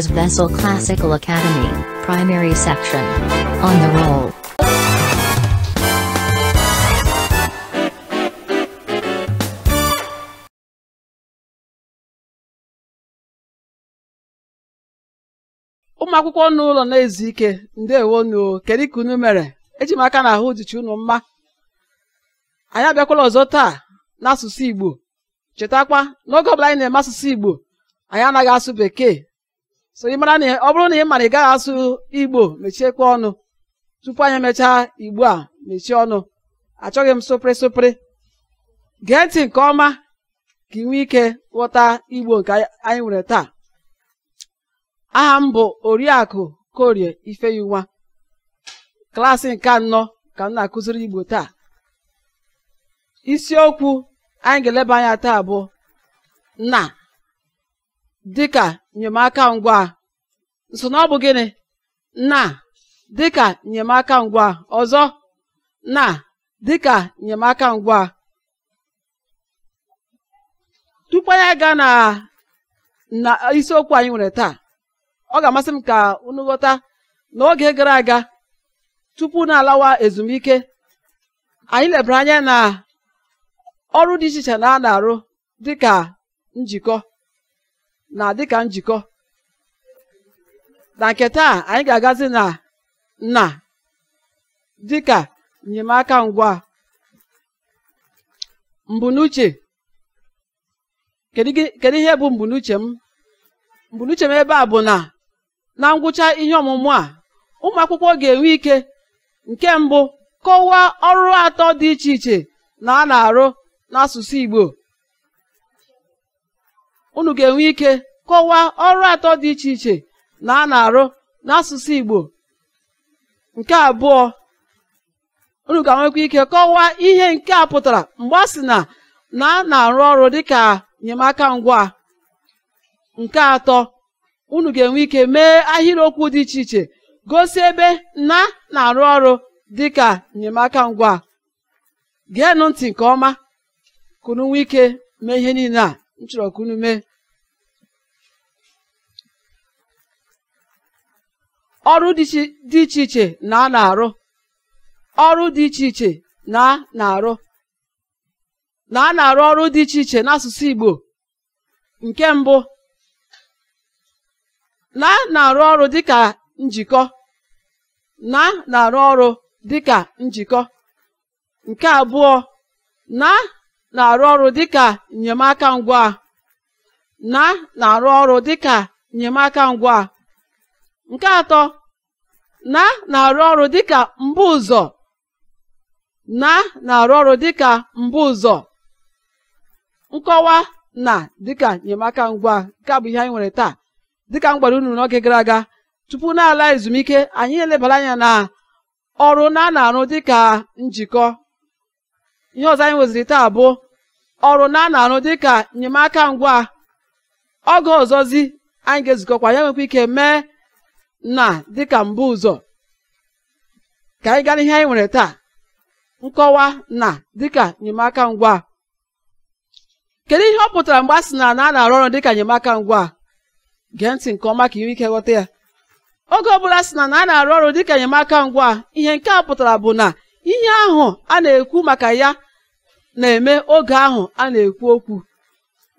Brothers Vessel Classical Academy, Primary Section. On the roll. ụmụ akwụkwọ n'ụlọ na-ezu ike kedu ka unu mere eji m aka na ahụ dịcha unu mma anyị abịakwala ọzọ taa n'asụsụ Igbo chetakwa n'oge ọbụla anyị na-eme asụsụ Igbo anyị anaghị asụ Bekee so ị mara na ọ bụrụ na ị mara ị gaghị asụ igbo mechiekwa ọnụ tupu anyị emechaa igbo a mechie ọnụ achọghị m sụpịrị sụpịrị gee nke ọma ka ị nwee ike ghọta igbo nke anyị nwere taa aha m bụ oriakụ korie ifeyinwa klaasị nke anọ ka m na-akụziri igbo taa isiokwu anyị ga-eleba anya taa bụ nna dịka enyemaka ngwa nsonaọbụ gịnị na dịka enyemaka ngwa ọzọ na dịka enyemaka ngwa tupu anyị ga na na isiokwu anyị nwere taa ọ ga-amasị m ka unu ghọta n'oge gara aga tupu na-alawa ezumike anyị lebara anya na ọrụ dị iche iche na a na-arụ dịka njikọ na dịka njikọ na nke taa anyị ga-agazi na nna dịka enyemaka ngwa mbunuche kedu ihe bụ mbunuche m mbunuche m ebe a bụ na na ngwụcha ihe ọmụmụ a ụmụ akwụkwọ ga-enwe ike nke mbụ kọwaa ọrụ atọ dị iche iche na a na-arụ n'asụsụ Igbo unu ga-enwe ike kọwaa ọrụ atọ dị iche iche na a na-arụ n'asụsụ Igbo nke abụọ unu ga-enwekwa ike kọwaa ihe nke a pụtara mgbe a sị na na a na-arụ ọrụ dịka enyemaka ngwa nke atọ unu ga-enwe ike mee ahịrịokwu dị iche iche gosi ebe na na-arụ ọrụ dịka enyemaka ngwa geenụ ntị nke ọma kunu nwee ike mee ihe niile a m chọrọ ka unu mee ọrụ dị iche iche na a na-arụ ọrụ dị iche iche na a na-arụ na a na-arụ ọrụ dị iche iche n'asụsụ Igbo nke mbụ na a na-arụ ọrụ dịka njikọ na na-arụ ọrụ dịka njikọ nke abụọ na na-arụ ọrụ dịka nnyemaka ngwa na na-arụ ọrụ dịka nnyemaka ngwa nke atọ na na-arụ ọrụ dịka mbụ ụzọ na na-arụ ọrụ dịka mbụ ụzọ nkọwa na dịka enyemaka ngwa nke bụ ihe anyị nwere taa dịka m gwara unu n'oge gara aga tupu na-ala ezumike anyị elebara anya na ọrụ na na-arụ dịka njikọ ihe ọzọ anyị nweziri taa bụ ọrụ na na-arụ dịka enyemaka ngwa oge ọzọzi anyị ga-ezukọkwa ya nwekwa ike mee na dịka mbụ ụzọ ka anyị gaa n'ihe anyị nwere taa nkọwa na dịka enyemaka ngwa kedu ihe ọ pụtara mgbe a sị na a na-arụ ọrụ dịka enyemaka ngwa gee ntị nke ọma ka inwe ike ghọta ya oge ọbụla sị na a na-arụ ọrụ dịka enyemaka ngwa ihe nke a pụtara bụ na ihe ahụ a na-ekwu maka ya na-eme oge ahụ a na-ekwu okwu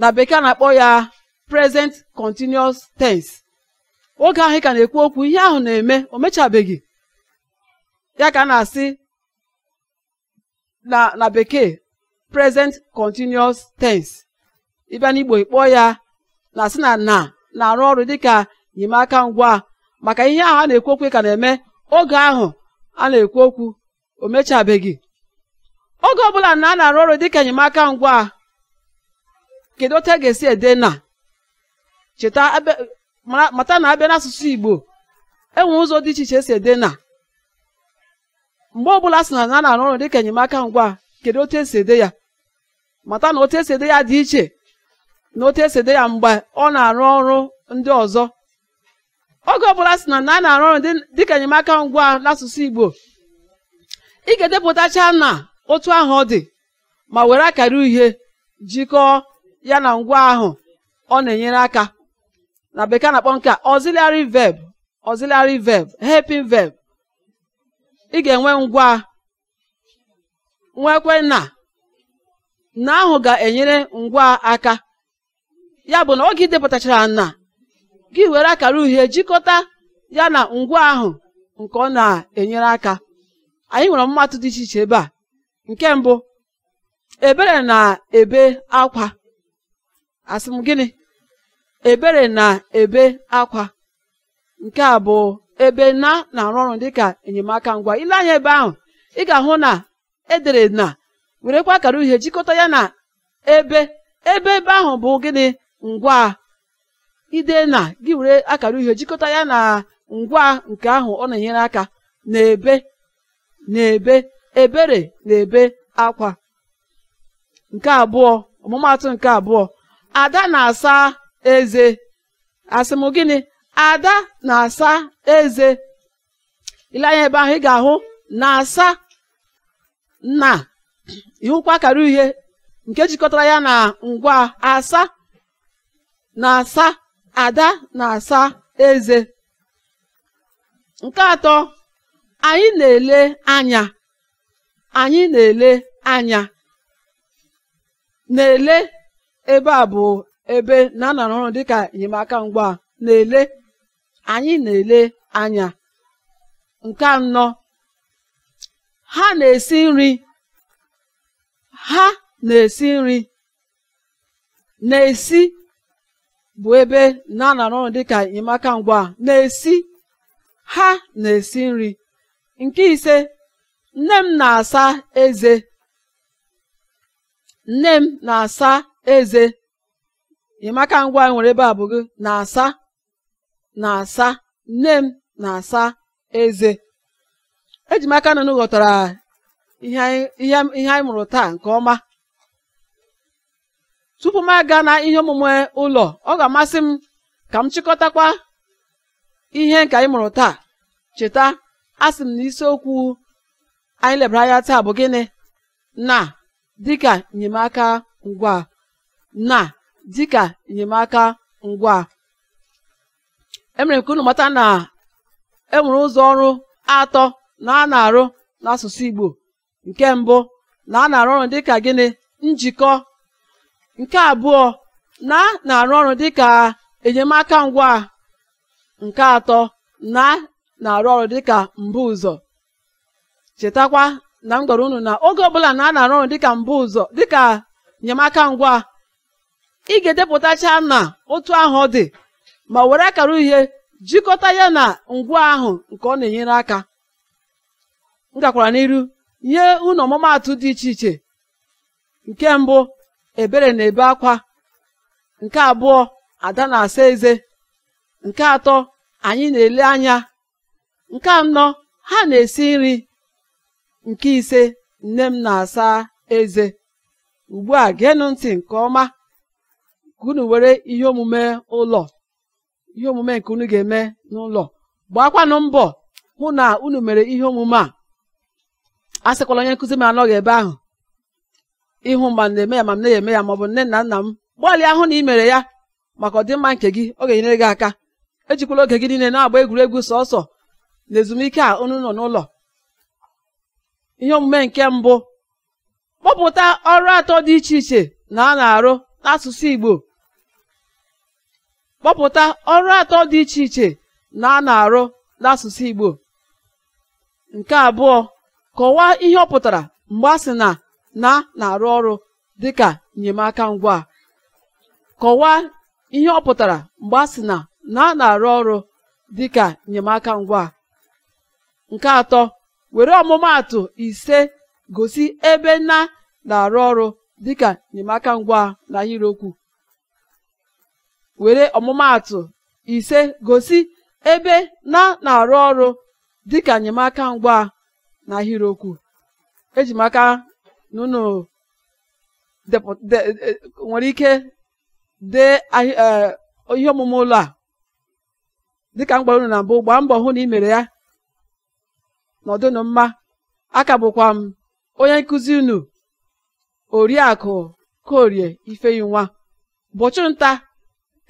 na bekee na-akpọ ya present continuous tense oge ahụ ka na-ekwu okwu ihe ahụ na-eme o mechabeghị ya ka a na-asị na na bekee present continuous tense ịbịa n'igbo ikpọ ya na-asị na na na-arụ ọrụ dịka enyemaka ngwa maka ihe ahụ a na-ekwu okwu ka na-eme oge ahụ a na-ekwu okwu o mechabeghị oge ọbụla na a na-arụ ọrụ dịka enyemaka ngwa kedu otu a e ga-esi ede na cheta mata na abịa n'asụsụ Igbo enwe ụzọ dị iche iche esi ede na mgbe ọbụla sị na a na-arụ ọrụ dịka enyemaka ngwa kedu otu esi ede ya mata na otu esi ede ya dị iche na otu esi ede ya mgbe ọ na-arụ ọrụ ndị ọzọ oge ọbụla sị na na a na-arụ ọrụ dịka enyemaka ngwa n'asụsụ Igbo ị ga-edepụtacha na otu ahụ ọ dị ma were akara uhie jikọọ ya na ngwa ahụ ọ na-enyere aka na bekee na-akpọ nke a auxiliary verb auxiliary verb helping verb ị ga-enwe ngwa nwekwe na na ahụ ga-enyere ngwa aka ya bụ na oge ị depụtachara na gị were akara uhie jikọta ya na ngwa ahụ nke ọ na-enyere aka anyị nwere mmatụ dị iche iche ebe a nke mbụ ebere na-ebe akwa asị m gịnị ebere na-ebe akwa nke a bụ ebe na na-arụ ọrụ dịka enyemaka ngwa ile anya ebe ahụ ị ga-ahụ na edere na werekwa akara uhie jikọta ya na ebe ebe ebe ahụ bụ gịnị ngwa ide na gị were akara uhie jikọta ya na ngwa nke ahụ ọ na-enyere aka na-ebe na-ebe ebere na-ebe akwa nke abụọ ọmụmaatụ nke abụọ ada na-asa eze asị m gịnị ada na-asa eze ile anya ebe ahụ ị ga-ahụ na-asa na ịhụkwa akara uhie nke jikọtara ya na ngwa asa na-asa ada na-asa eze nke atọ anyị na-ele anya anyị na-ele anya na-ele ebe a bụ ebe na ọrụ dịka enyemaka ngwa na-ele anyị na-ele anya nke anọ ha na-esi nri ha na-esi nri na-esi bụ ebe na anara ọrụ dịka enyemaka ngwa na-esi ha na-esi nri nke ise nne m na-asa eze nne m na-asa eze ịmaka ngwa nwere ebe a bụ gị na-asa na-asa nne m na-asa eze eji m aka na ghọtara ihe anyị mụrụ taa nke ọma tupu m aga na ihe omume ụlọ ọ ga-amasị m ka m chịkọtakwa ihe nke anyị mụrụ taa cheta asị m na isiokwu anyị lebara anya taa bụ gịnị na dịka enyemaka ngwa na dịka enyemaka ngwa emere m ka unu mata na enwere ụzọ ọrụ atọ na a na-arụ n'asụsụ Igbo nke mbụ na a na-arụ ọrụ dịka gịnị njikọ nke abụọ na a na-arụ ọrụ dịka enyemaka ngwa nke atọ na na-arụ ọrụ dịka mbụ ụzọ chetakwa na m gwara unu na oge ọbụla na a na-arụ ọrụ dịka mbụ ụzọ dịka enyemaka ngwa ị ga-edepụtacha na otu ahụ ọ dị ma were akara uhie jikọta ya na ngwa ahụ nke ọ na-enyere aka m gakwara n'iru nye ụlọ ọmụmaatụ dị iche iche nke mbụ ebere na-ebe akwa nke abụọ ada na-asa eze nke atọ anyị na-ele anya nke anọ ha na-esi nri nke ise nne m na-asa eze ugbu a geenụ ntị nke ọma ka unu were ihe omume ụlọ ihe omume nke unu ga-eme n'ụlọ gbakwanụ mbọ hụ na unu mere ihe omume a a sịkwala onye nkụzi m anọghị ebe ahụ ịhụ ma na-eme ya ma m na-eme ya ma ọ bụ nne na nna m gbalịa hụ na ị mere ya maka ọdịmma nke gị ọ ga-enyere gị aka ejikwala oge gị niile na-agba egwuregwu sọsọ na ezumike a unu nọ n'ụlọ ihe omume nke mbụ kpọpụta ọrụ atọ dị iche iche na a na-arụ n'asụsụ Igbo kpọpụta ọrụ atọ dị iche iche na a na-arụ n'asụsụ Igbo nke abụọ kọwaa ihe ọ pụtara mgbe a na na na-arụ ọrụ dịka enyemaka ngwa a sị nke atọ were ọmụmaatụ ise gosi ebe na na-arụ ọrụ dịka enyemaka ngwa na were ọmụmaatụ ise gosi ebe na na-arụ ọrụ dịka enyemaka ngwa na ahịrịokwu eji e, nwere ike dee e, ihe omume ụlọ a dịka mgbara unu na mbụ gbaa mbọ hụ na ị mere ya n'ọdụnụ mma aka bụkwa m onye nkụzi unu oriakụ korie ifeyinwa ụbọchị nta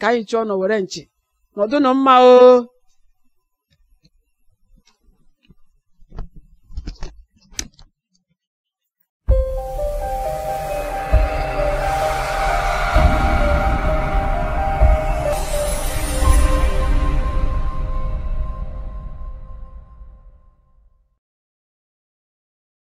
ka anyị chọọ nọ were nchi nọdụnụ mma o